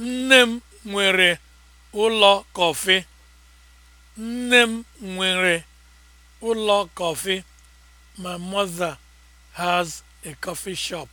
Nne m nwere ụlọ kọfị. Nne m nwere ụlọ kọfị. My mother has a coffee shop.